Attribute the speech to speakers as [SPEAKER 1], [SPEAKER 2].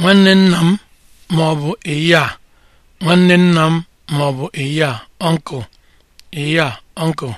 [SPEAKER 1] nwanne nna m ma ọ bụ eyi nwanne nna m ma ọ bụ eyi a uncle eyi